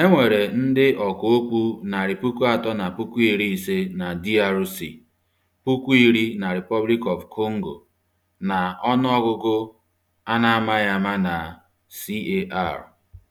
E nwere ndị ọka okwu narị puku atọ na puku iri ise na DRC, puku iri na Republic of Congo, na ọnụọgụgụ a na-amaghị ama na CAR.